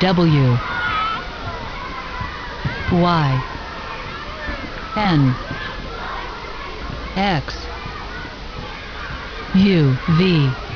W Y N X U V